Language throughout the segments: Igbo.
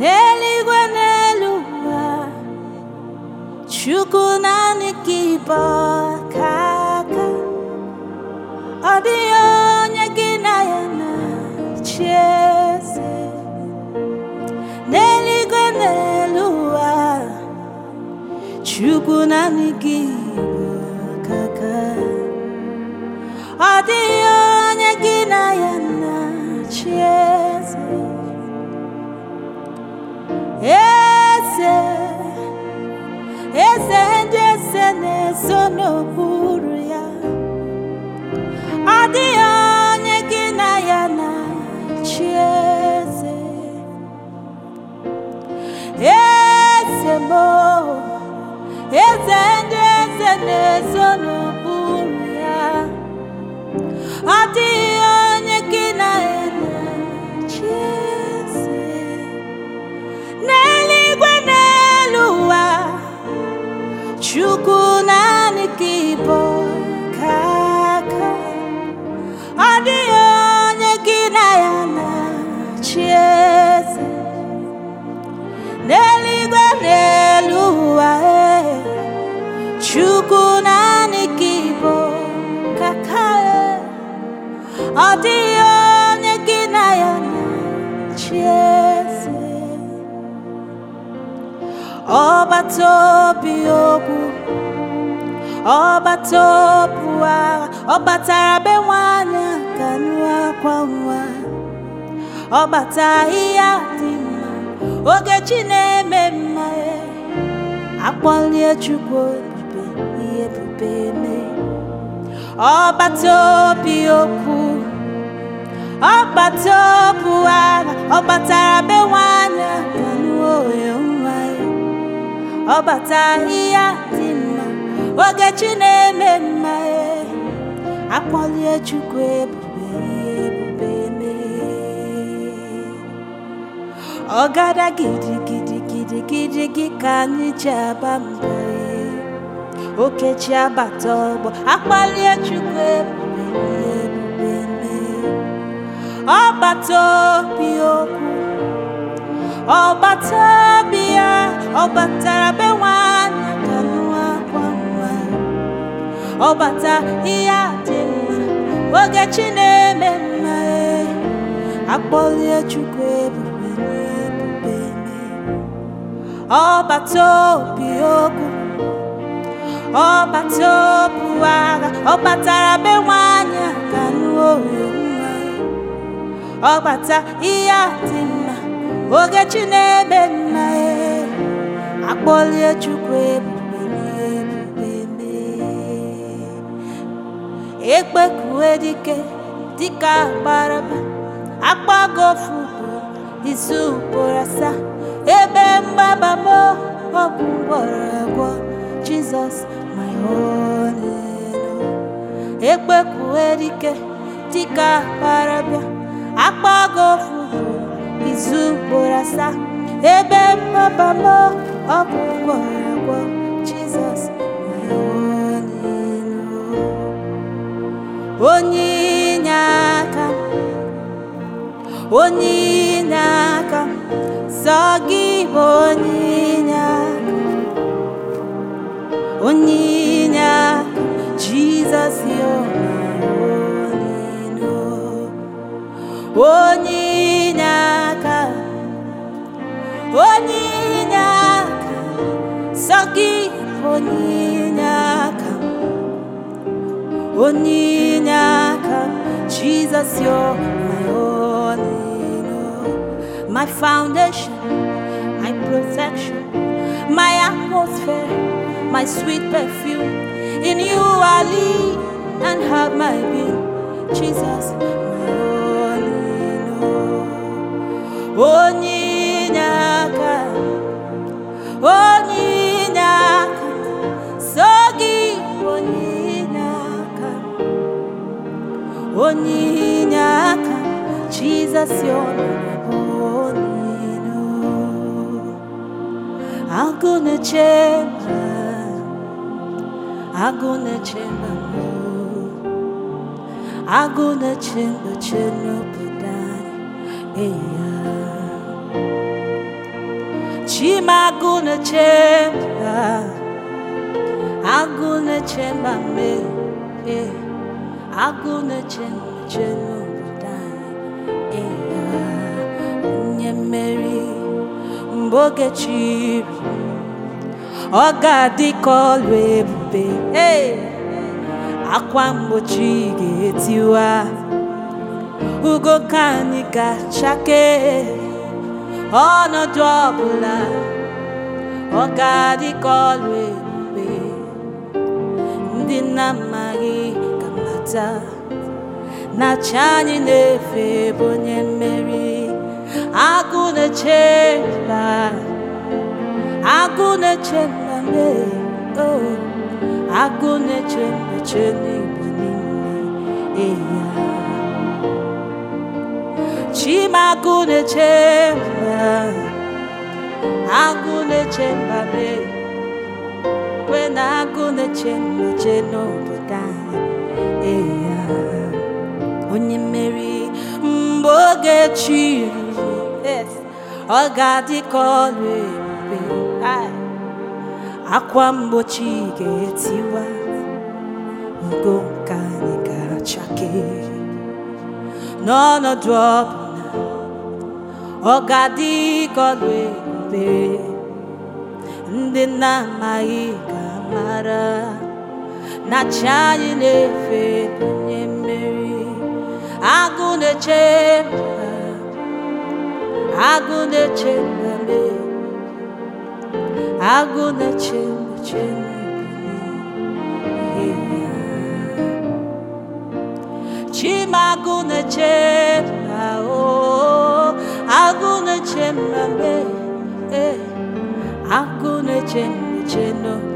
n'eluigwe n'elu ụwa chukwu naanị ka ịbụ ọka aka ọ dịghị onye gị na ya na-achị eze n'eluigwe n'elu ụwa chukwu naanị ka ịbụ ọka aka so n'okpuru ya ọ dịghị onye gị na ya na chi eze eze m eze ndị eze na-ezo n'okpuru ya ọ dịghị ọ dịghị onye gị na ya na-achị eze ọgbata obi okwu ọgbata obu agha ọ batara be nwanyị ka nụ akwa nwa ọ bata ahịhịa dị mma oge chi na-eme mma akpọlie chukwu ebube ihe ebube eme ọgbata obi okwu ọgbata ọbụ ara ọ gbatara be nwanyị nwa ya ọ gbata ihe dị mma oge chi na-eme mma akpọlie Chukwu ebube ihe ebube ọgada gidigidi gị ka anyị ji aba mba okechi abata ọgbọ akpalie Chukwu ebube Ọbataobi okwu ọgbata obi ya ọ batara be nwanyị akanụ akwa nwa ọbata ihe adị mma oge chi na-eme mma e. akpọlie chukwu ebube n'ebube ọgbata ọbataobi okwu ọgbata obu agha ọ batara be nwanyị akanụ oyo ọgbata ihe adị mma ogechi na-ebe nna ya akpọlie chukwu ebube ebube ekpekue dike dịka gbaraba akpago ofu ugboro izu ugboro asaa ebe mgbaba m ọgwụ gwọrọ agwọ jizọs my only ekpekue dike dịka gbaraba akpọgo ofu izu ugboro ebe papa m ọ bụ ugboro Jizọs onye inye aka onye inye aka sọ gị bụ onye inye aka onye inye aka Jizọs onye inye aka onye inye aka sọ gị onye inye aka onye inye aka Jesus you're my only my foundation my protection my atmosphere my sweet perfume in you I live and have my being Jesus onye inye aka Jizọs yọrọ na gonna change I'm gonna change I'm gonna change change obodo anyị Chima gonna change I'm gonna change agụ na-eche nche n'obodo anyị nye mmeri mgbe oge chiri ọ ga-adị ka ọlụ ebube akwa mgbochi ga-etiwa ugo ka anyị ga-achake ọnọdụ ọbụla ọ ga-adị ka ọlụ ebube ndị na amaghị nweta na chi anyị na-efe bụ onye mmeri agụ na-eche mba agụ na-eche mba oh, agụ na-eche mba che n'igbo niile eya chimagụ na-eche mba agụ na-eche mba kwe na agụ na-eche mba che n'obodo anyị ya onye mmeri mgbe oge chi ruru ọ ga-adị ka ọrụ ebube akwa mgbochi ga-etiwa ngo nke anyị ga-achake n'ọnọdụ ọbụla ọ ga-adị ka ọrụ ebube ndị na-amaghị ga-amara na chi anyị na-efe onye mmeri agụ na-eche agụ na-eche agụ na-eche eche chimagụ na-eche agụ na-eche oh, agụ na-eche eh, eche no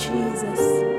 Jesus.